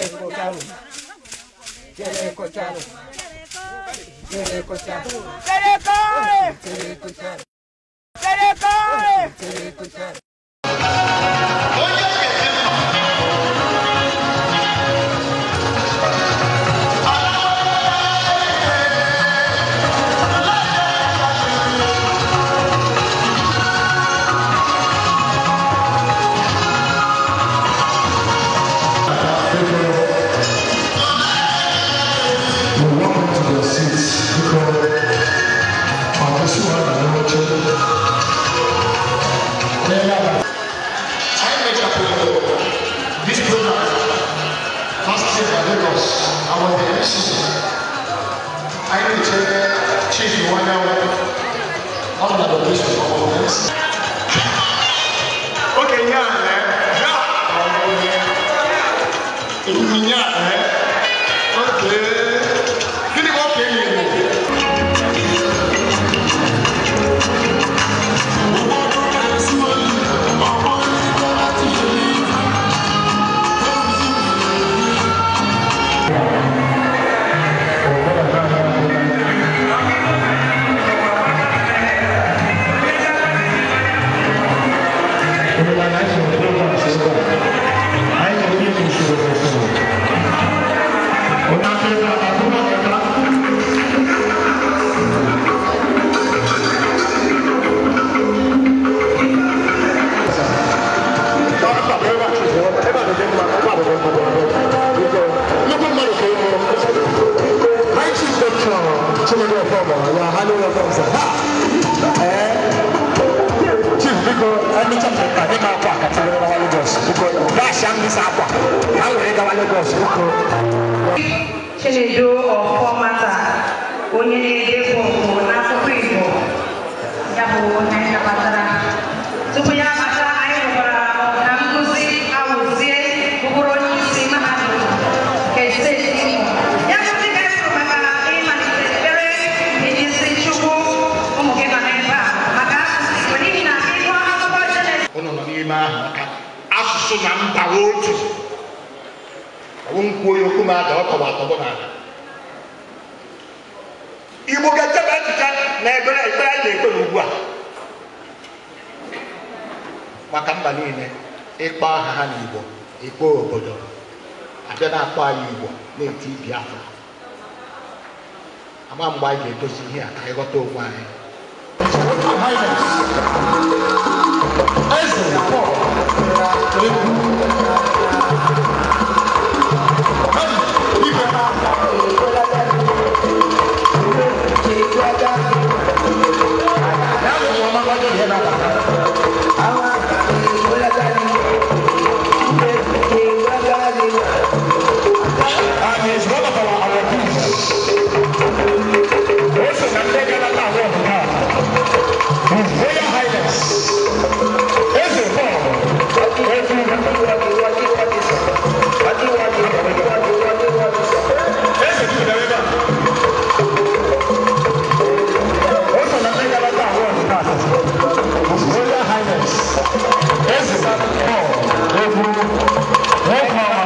escucharon, quiere escucharon, quiere quiere quiere Okay, yeah, man. Yeah. Yeah. yeah. Actually, you're from, uh, you're handling your from, sir. Eh? Chief, because any time I think I'm back, I tell you about Lagos. Because that's young this aqua. I will read about Lagos. Chinedu or Formata, onye na-ede fọmụ n'asụkwụ Igbo, ya bụ onye nnabatara. Tupu ya asụ na mba otu ọwụ nkwuo ya okwu m ada ọ tọgbọ atọgbọ n'ala igbo ga-echebe echiche na ekpere ekpere anyị na-ekpe n'ugbu a maka mba niile ịkpọ aha ha n'igbo ikpe obodo abịa na-akpọ anyị igbo na-eti biafra ama mgbe anyị ga-edozi ihe a ka anyị ghọta onwe anyị highness ẹsẹ̀ pọ̀ ewu. Yeah, that's what I'm going Hofman. goed.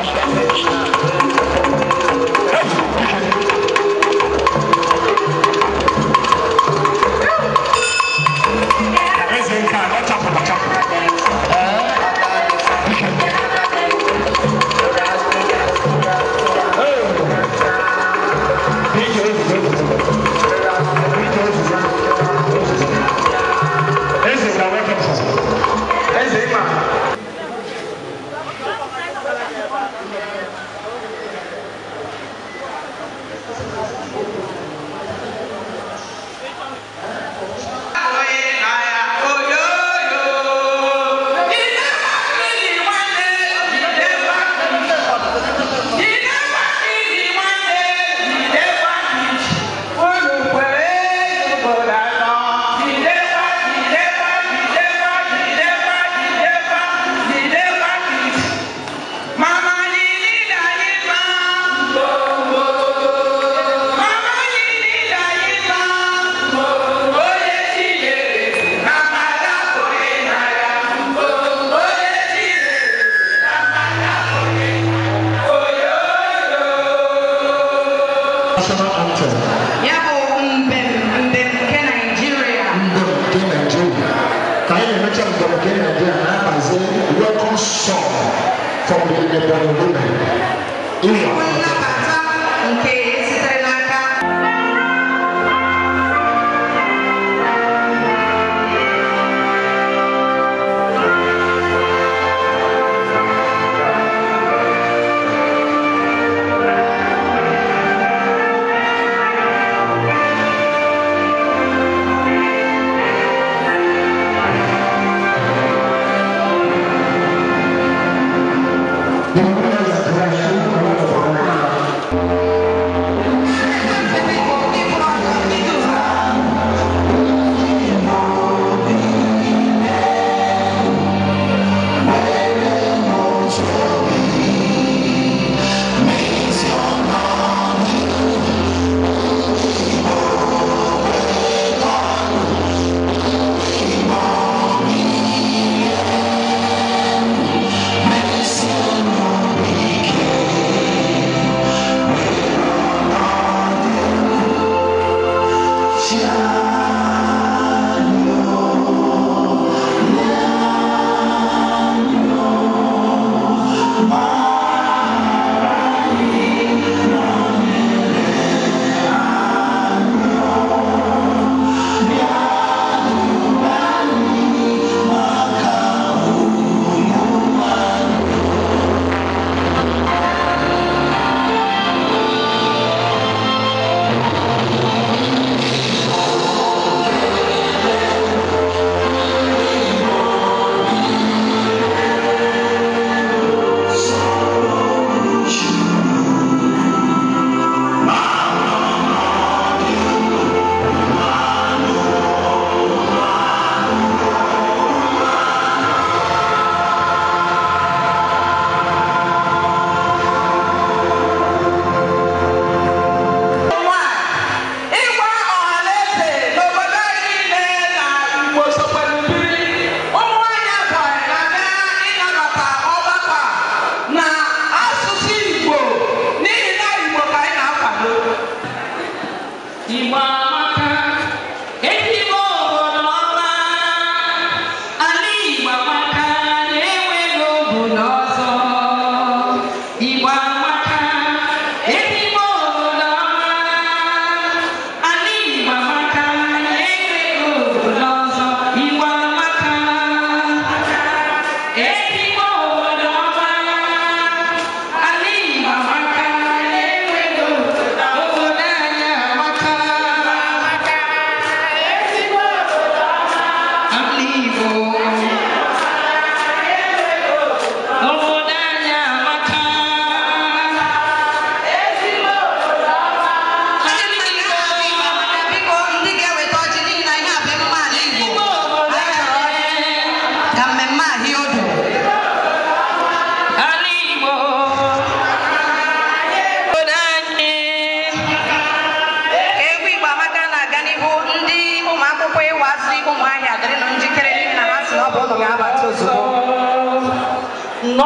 No, no,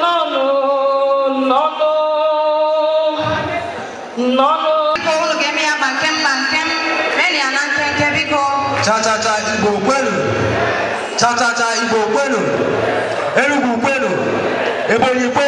no, no, no, no, no. People give me a bankem, bankem. Many an anken biko. Cha cha cha, ibo kwenu. Cha cha cha, ibo kwenu. Erugu kwenu. Ebonyi kwenu.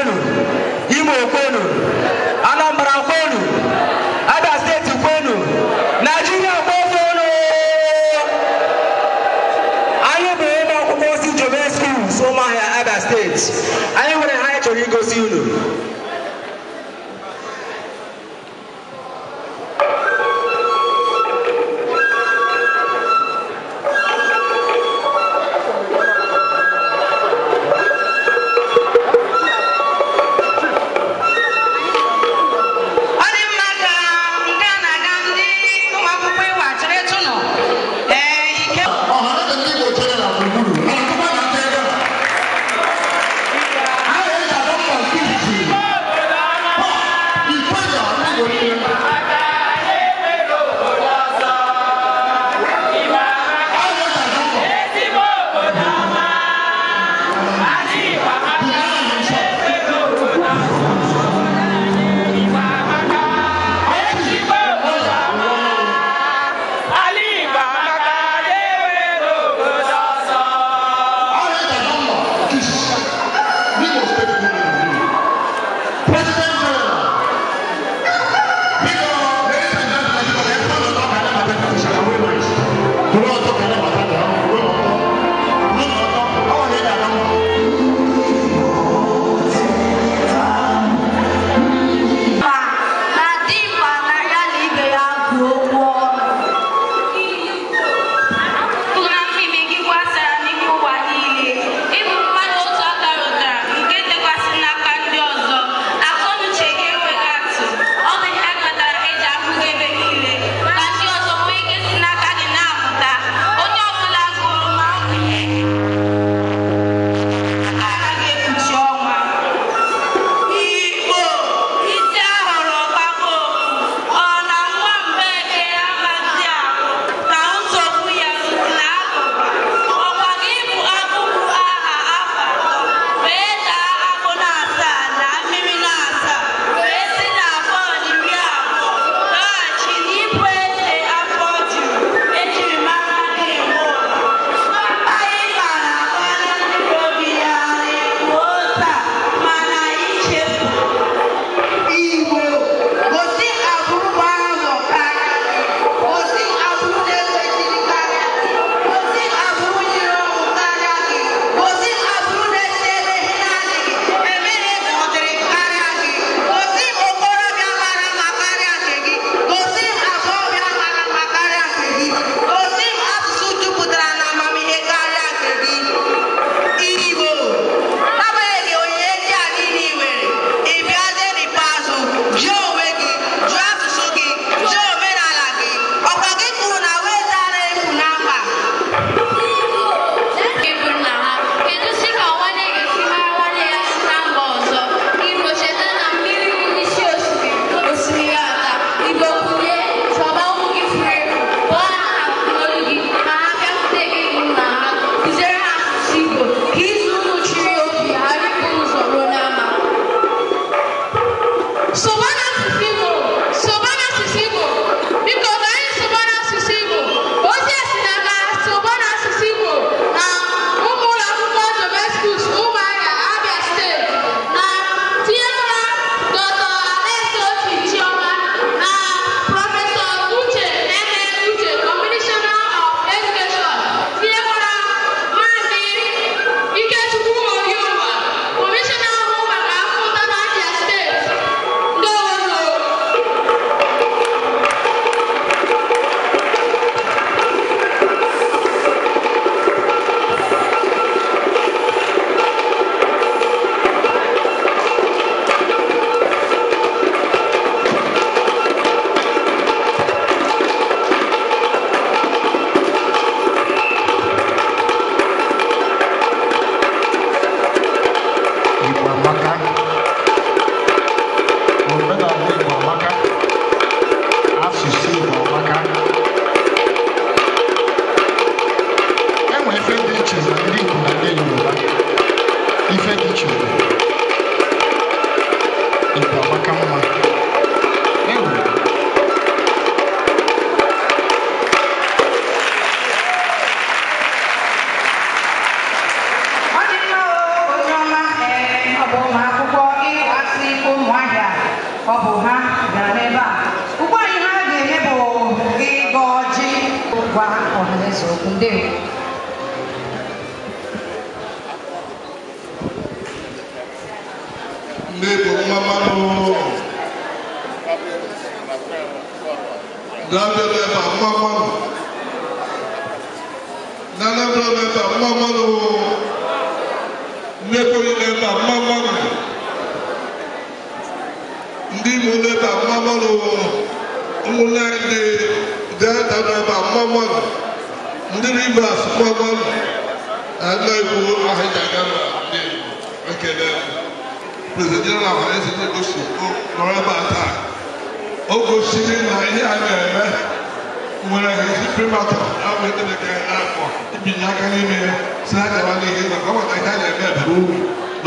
amaka omenala igbo amaka asụsụ igbo amaka enwere ife dị iche na ndị igbo na ndị yoruba ife dị iche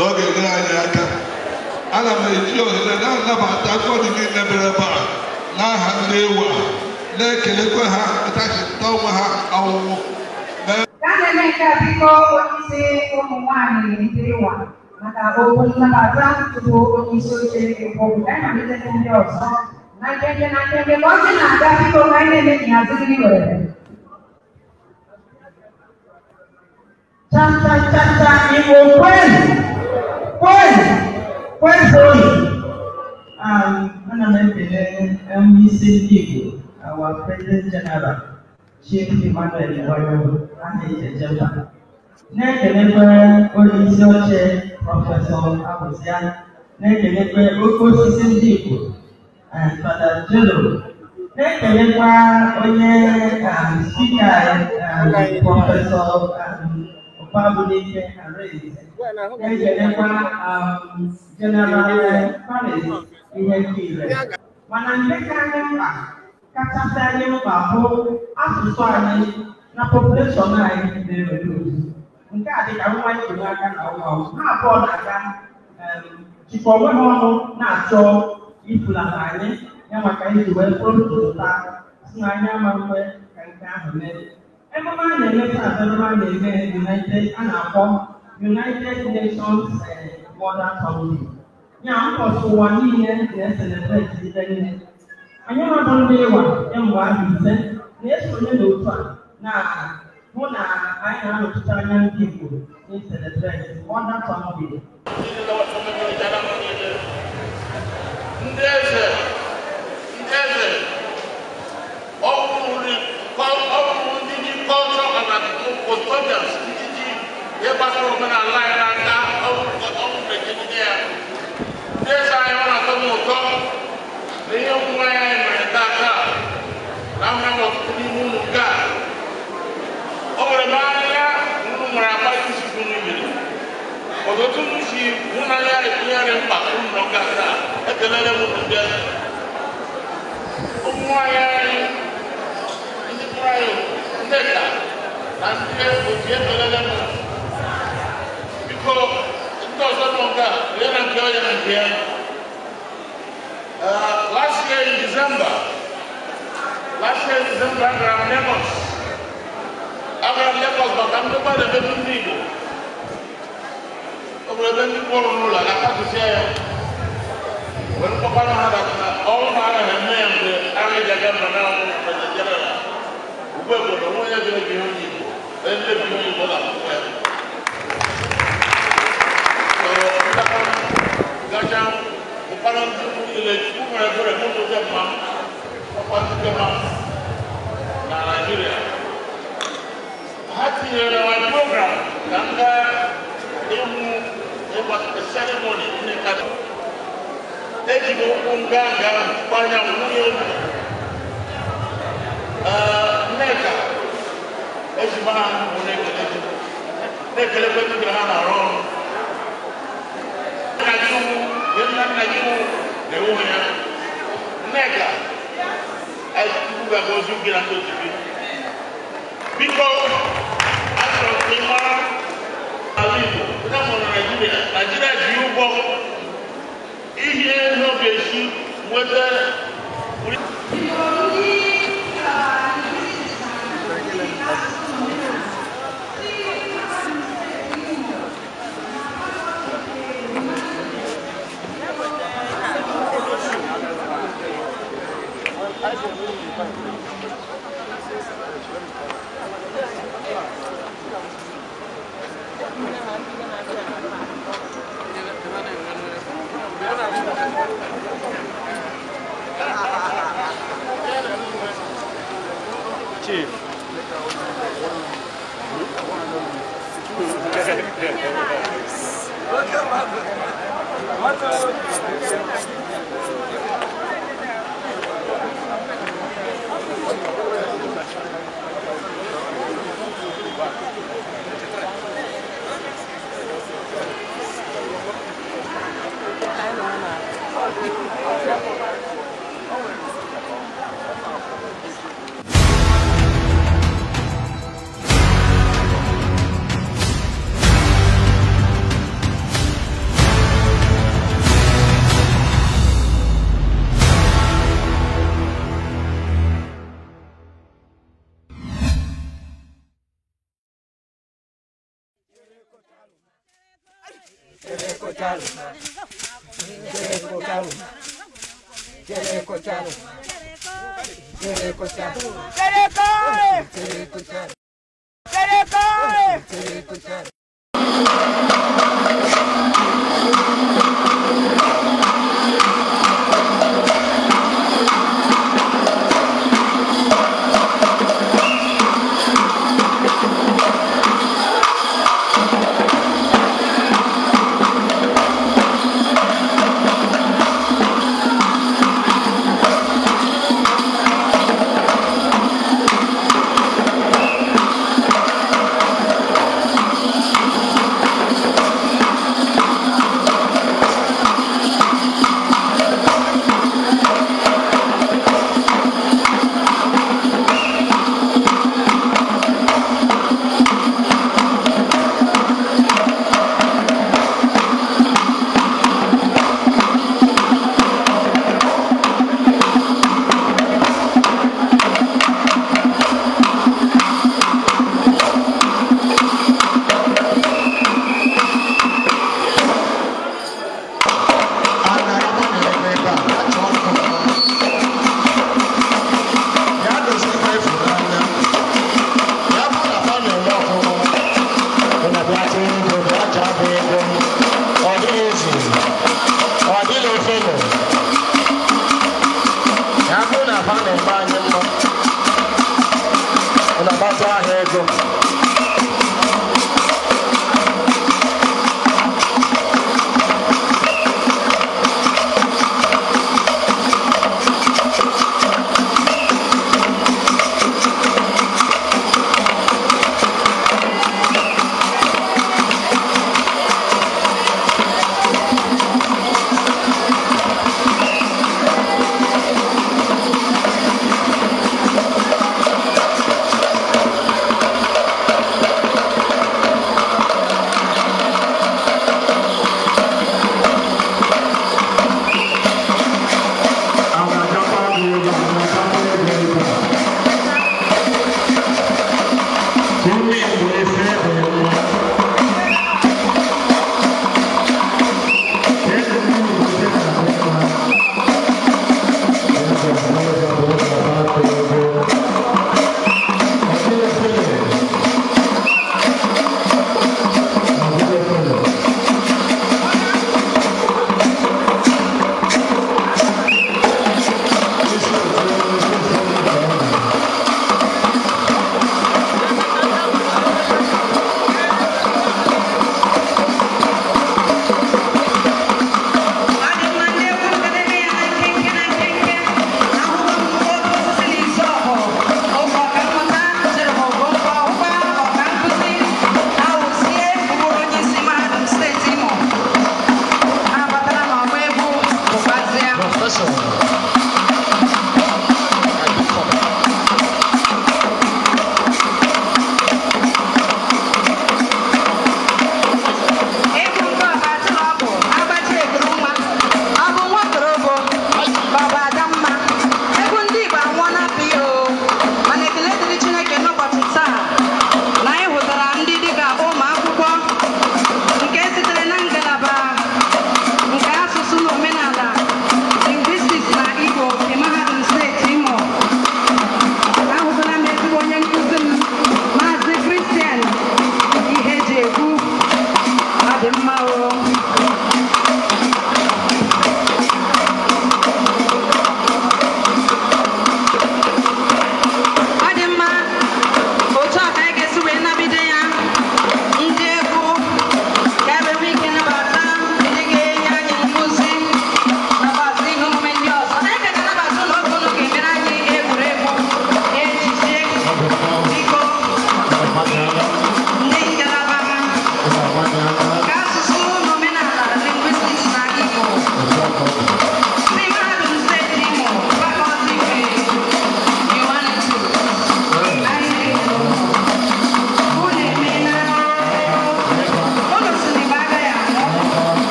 n'oge gara anyị aka ana m eji ohere na-anabata agụọdị niile mere ebe a n'aha ndị ewu a na-ekelekwa ha atachita onwe ha ọwụwụ Emeka biko onyeisi ụmụ nwanyị Naijiria maka okwu nnabata tupu onyeisi oche ekpobu ya na-amalite ndị ọzọ na nkenke na nkenke ka ọ sị na-aga biko ka anyị na-emebi azụ gị were cham cham cham cham igbo kwenu Why? Why sorry? Um, ana m ekele onye isi ndị Igbo, our President General, Chief Emmanuel Iwayo, aha Ijejema. Na-ekelekwe onye isi oche Prọfesọ Abụzia, na-ekelekwe oke osisi ndị Igbo, Fada Jelo, na-ekelekwa onye spika Prọfesọ Babudi Harris. Ngay giờ đêm qua, à, General dạ, dạ. mà Paris Ihenkire. Wanampeka nyumba katika nyumba huu asụsụ anyị na population anyị na-ereduce. Nke a dịka nwa anyị nwere aka na ụwa ha abụọ na-aga jikọ onwe ha ọnụ na-achọ ifulata anyị ya maka iji wee pụrụ ntụtụta si na anyị ama mgbe ka nke ahụ mere. ememe a na-eme taa bụ ememe a na-eme united a na-akpọ united nations border council ya ụbọchị ụwa niile na-eselebreti ibe nne anyị nọdụ ndị ịwa kemgbe ahụ ise na-esonye n'otu a na hụ na anyị na-anọchite anya ndị igbo na-eselebreti border council ndị eze ndị eze ọ bụrụ elders títí yẹ bá tó mẹ́rin aláì náà dá ọ̀hún pèjì ní ẹ̀. Bí ẹ̀sà yẹn wọn àtọ́ mọ̀ tọ́, lẹ́yìn ọ̀hún wọn yẹn mẹ́rin dáadáa, láwọn ẹ̀wọ̀ tó ní mú nù ká. Ọ̀rẹ́ máa ń yá nínú mọ̀ràn apá yìí sì fún mi yìí. Ọ̀dọ̀ tó ń fi múná yá ìpínyà rẹ̀ ń pa fún nù káta, ẹ̀ tẹ̀lé rẹ̀ mú nù bẹ́ẹ̀. Ọmọ ayé ẹni ní kúrayò ń tẹ̀ta. Nasiye ujiye tolelema. Biko ntozo nonga yana kyo yana kyo. last year in December, last year in December, I ran Lagos. I ran but I'm not going to be able to Obìnrin bẹ́ẹ̀ ní bọ́ọ̀lù ló la lápapọ̀ sí ẹ̀ wọ́n kọ́kọ́ náà hàn dàgbà ọ̀hún náà hàn mẹ́rin bẹ́ẹ̀ àwọn ìjàgbá mọ̀ náà wọ́n fẹ̀yẹ̀ jẹ́rẹ̀ la wọ́n bẹ́ẹ̀ Thank you, Unganga, Panya Muyo. Uh, ejima wò ne kele ne kele pe tu kele hana rɔ nadiwo yɛlɛ nadiwo ne wo nya nɛga ɛtutu bɛ bɔ zu gbira to tibi bikɔ asɔrɔ kpema awi bo ne mɔ Nigeria Nigeria ju yi bɔ ihe n'oge si wete. Thank you.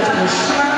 Deus nos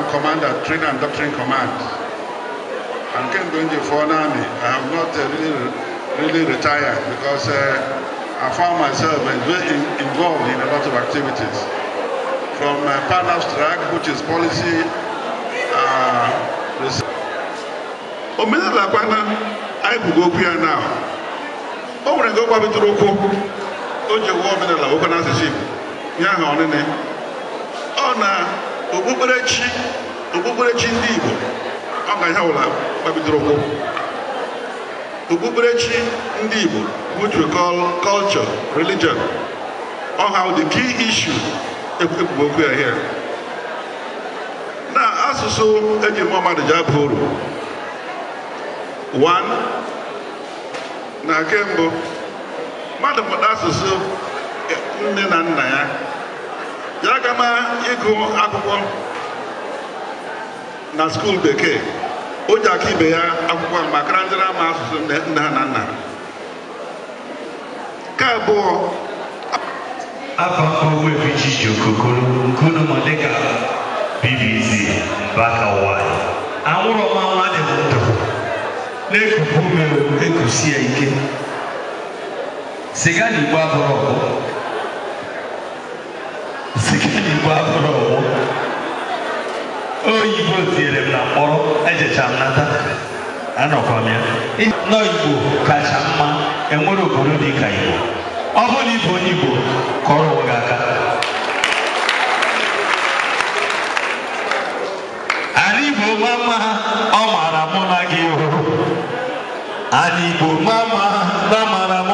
am commander, training and doctrine command. I'm Ken Donji for an army. I have not uh, really, really retired because uh, I found myself in, involved in a lot of activities. From uh, Partners Track, which is policy uh, research. Omenelakwana, I will go here now. Oh, O nwere nke ọ gbabitụrụ ụkwụ, o ji ụwa omenala okwu n'asụsụ Igbo, ya ahụ ọnịnị. okpukperechi okpukperechi ndị Igbo ọ ga ya wụla gbabidoro ụkwụ okpukperechi ndị Igbo which we call ọha ọ ha the key issue ekwubu okwu ya here na asụsụ eji mma mmadụ ji aba uru one na nke mbụ mmadụ mụta asụsụ e, nne na nna ya ya aga m ịgụ akwụkwọ na skuul bekee o ji aka ibe ya akwụkwọ ahụ maka ndị ama asụsụ nne ha na nna nke abụọ afọ mkpọgbu ebiji ji okokoro nkunu ma dịka bbc mbakawa anwụrụ mmanwụ adị m ndụ na-ekupu ume ekusi ya ike siga na igbo oyibo oyibo tinyere m na mkpọrọ ejecha m nata anọkwa m igbo kacha mma enwere obodo dị ka igbo ọ bụrụ na onye igbo kọrọ gị aka ala igbo nwa mma ha ọ maara mụ na gị hụrụ ala igbo nwa na mara m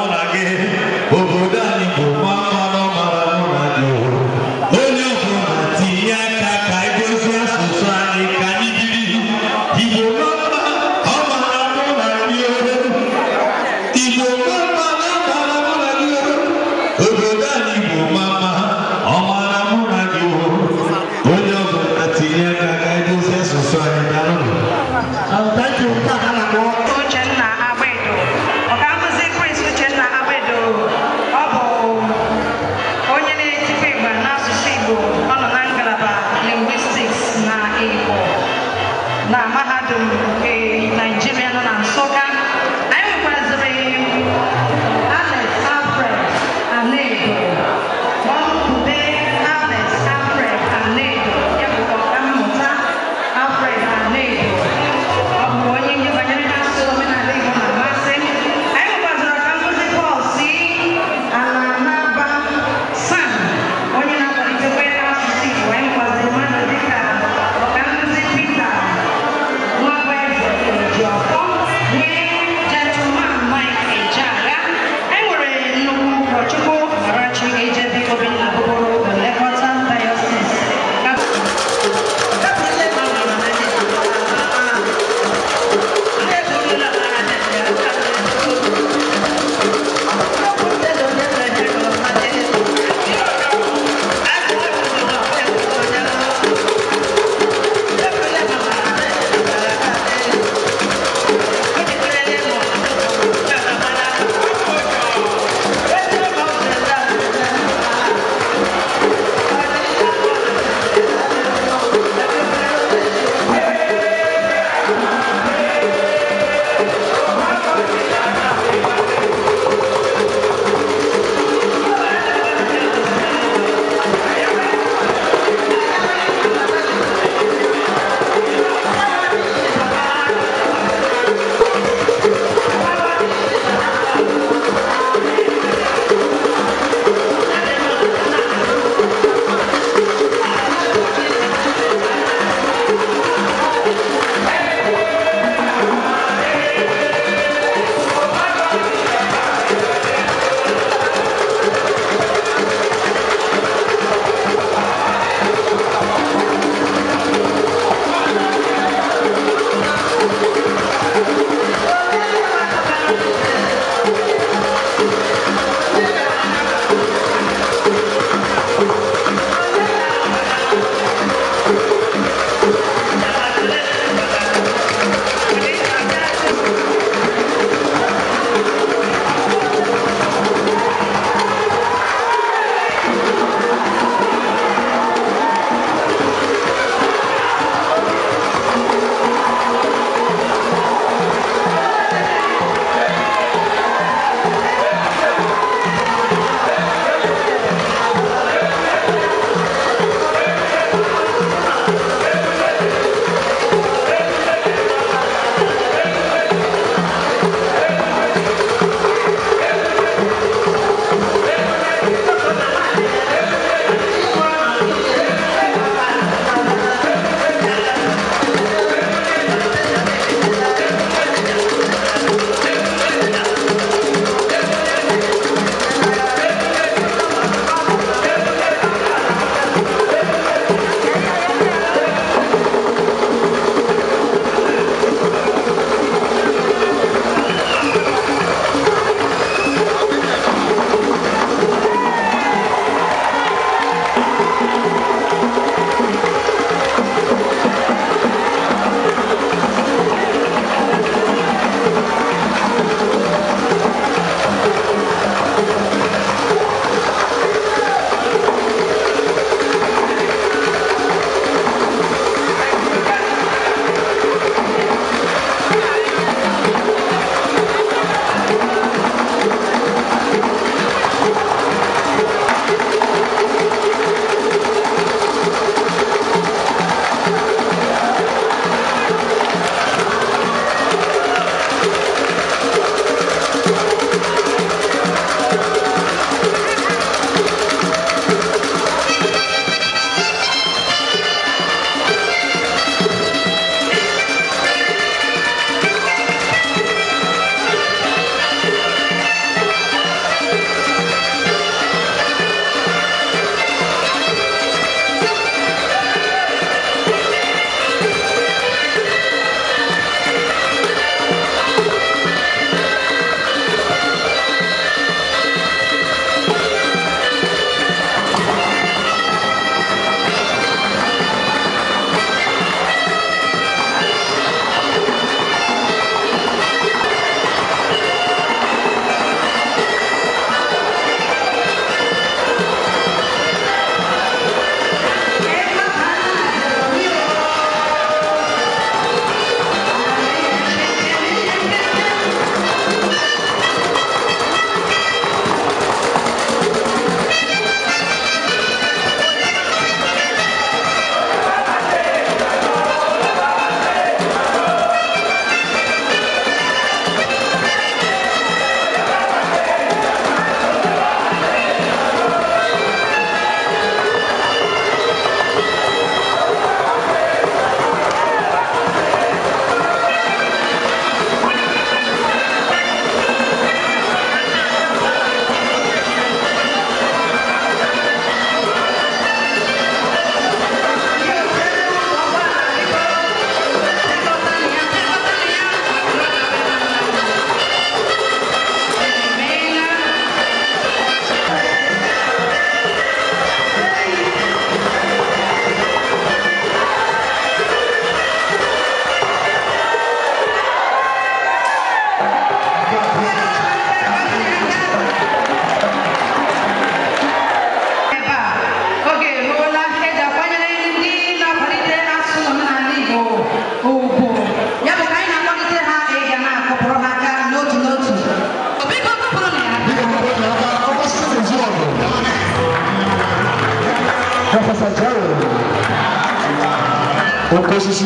osisi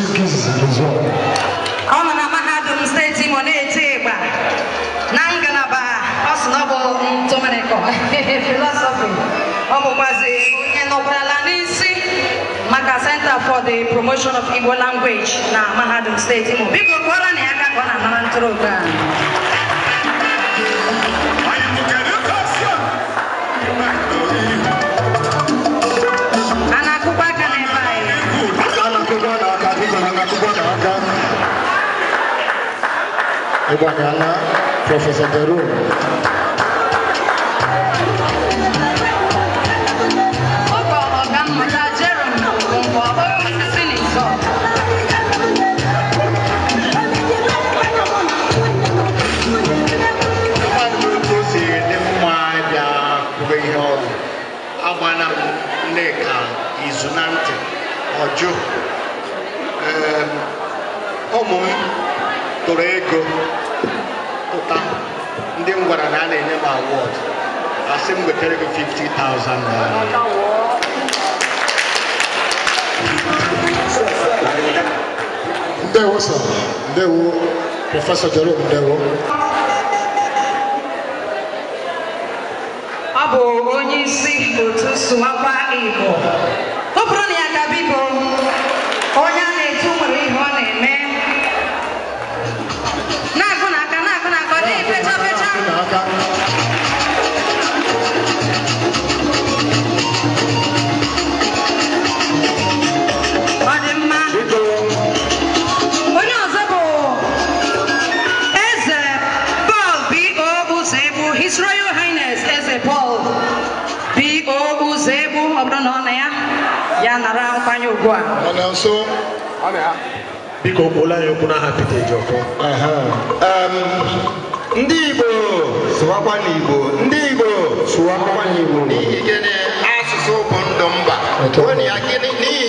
ọ nọ na mahadum steeti Imo na-eti ịgba na ngalaba ọ ọ filosofi ọ bụkwazi onye nọkwarala n'isi maka Center for the Promotion of Igbo Language na mahadum steeti Imo biko kụọrọ na ya aka ka ọ na amara ntorobịa Bangala, Professor Deru. izu na ntị ọjụ ụmụ m gwara na a na-enye m award. asị m wetere 50,000 naira uh, ndewo sir ndewo prọfesọ Jerome ndewo go on. Mana na Biko kpola ya okwu n'aha Ndị Igbo sụwakwa n'Igbo. Ndị Igbo sụwakwa n'Igbo. N'ihi gịnị asụsụ bụ ndụ mba. Onye ya gịnị n'ihi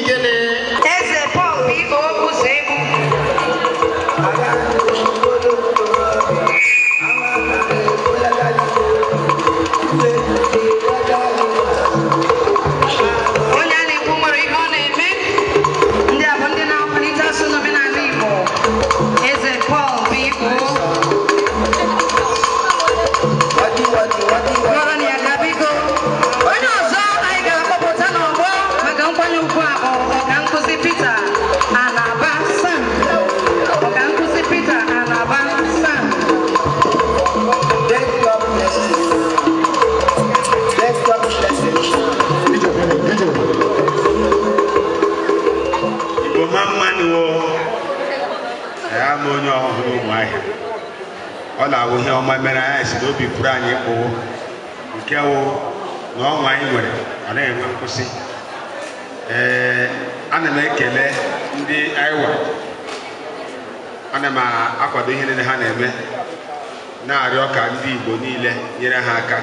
obi pụrụ anyị kpụwo nke wụ na ọnwa anyị nwere anaghị enwe nkwụsị ee ana m ekele ndị aiwa ana m akwado ihe niile ha na-eme na-arịọ ka ndị Igbo niile nyere ha aka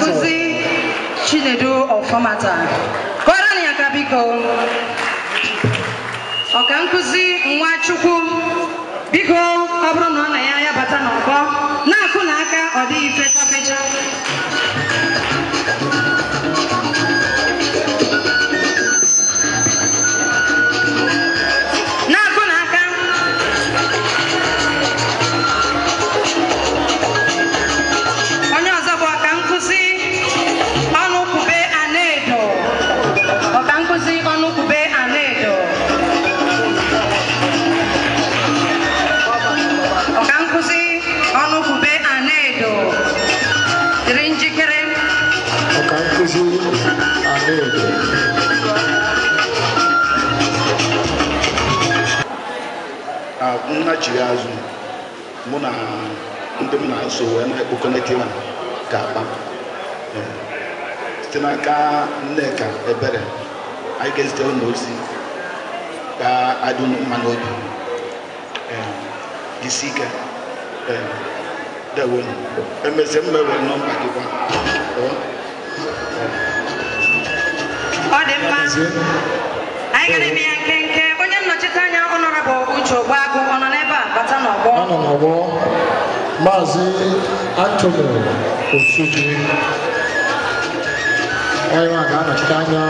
nkuzi Chinedu Ọfọmata kọrọ ya ka biko ọka Nwachukwu laghachiri azụ mụ na ndị m na-eso wee na-ekpokọnete na ka akpa ehm, site n'aka nneka ebere anyị ga-ezite ụlọ ozi ka adị unu mma n'obi ehm, isi ike ehm, dewonu emezie mmewe nọmba gị kwa ọ dị mkpa anyị ga na-eme ya nkenke onye nnọchite anya bụ uche ogbuagụ ọ nọ anọ n'ọgbọ maazị antoni osuji onye nwa ga-anọchite anya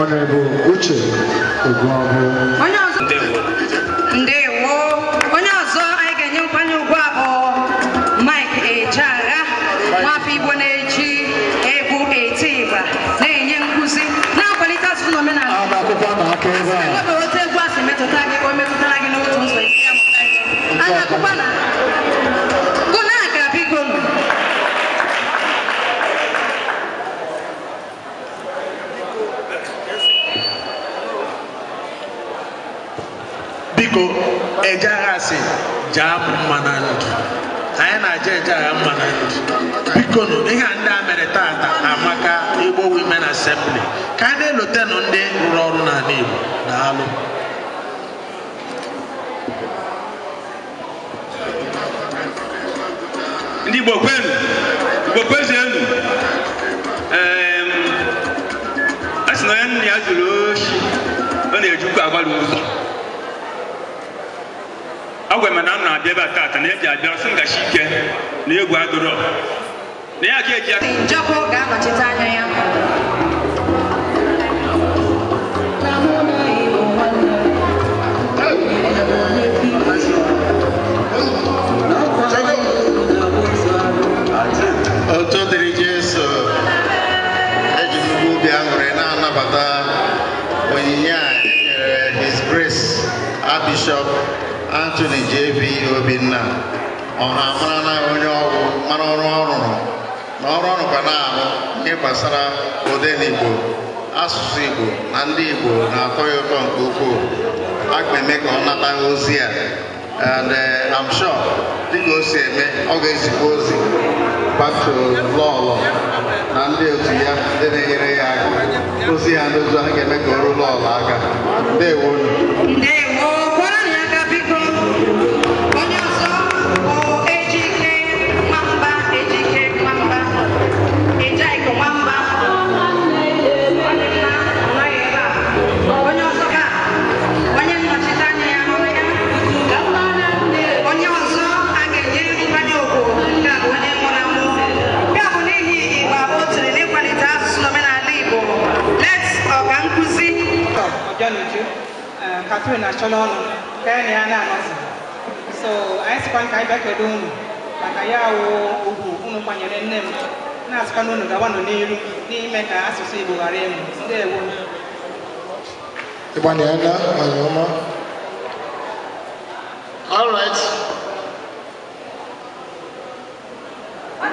ọnọbụ uche oguọbụ ndewo onye ọzọ anyị ga-enye nkwanye ugwu ahụ mike ejeagha nwafọ igbo na-eji egwu eti ịgba na-enye nkwụsị, na-akwalite asụsụ na omenala akwụkwọ na aka ebe a biko ejaghị asị jaa mma na ndụ anyị na-aja ejaghị mma na ndụ biko nụ ihe a ndị a mere taata amaka igbo women assembly ka a na-elotenụ ndị rụrụ ọrụ n'ala igbo na alụ ndị Igbo kwenu Igbo kwezienu a sị na onye nna ya zuru oshi ọ na-ejikwa agbalị ụzọ ọ agwa m na m na-abịa ebe a taata na eji abịa sị ngachi ike na egwu adụrọ na ya ka eji njọkụ ga-anọchite anya ya Bishọp Anthony JB Obinna ọha marala onye ọgwụ mara ọrụ ọrụ na ọrụ ọrụ rụkwa na-arụ ihe gbasara odenigbo asụsụ Igbo na ndị Igbo na-atọ ya ụtọ nke ukwuu a ga-eme ka ọ nata ozi a and eh, sure dịka o si eme ọ ga-ezikwa ozi bato lọlọ na ndị otu ya ndị na-enyere ya aka ozi ya n'ozu a ga-eme ka o ruo lọlọ aka ndewo atụrụ na achọla ọnụ karịa na ya na so anyị sịkwa ka anyị bịa kedu unu maka ya wụ ugwu unu kwanyere nne m na-asịkwa na unu gawanụ n'iru n'ime ka asụsụ igbo ghara ịmụ ndewo ịgbanyela anyị ọma All right. ọ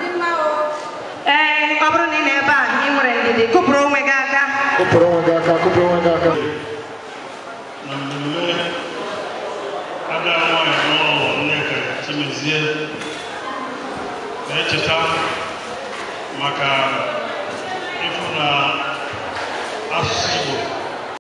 eh, bụrụ na ị nọ ebe a, ị nwere ndidi, kụpụrụ onwe gị aka. Kụpụrụ onwe gị aka, kụpụrụ onwe gị aka. Namune, ada wọn ẹ̀dọ́ nneka timizie na-echeta maka ịfụ na asụsụ Igbo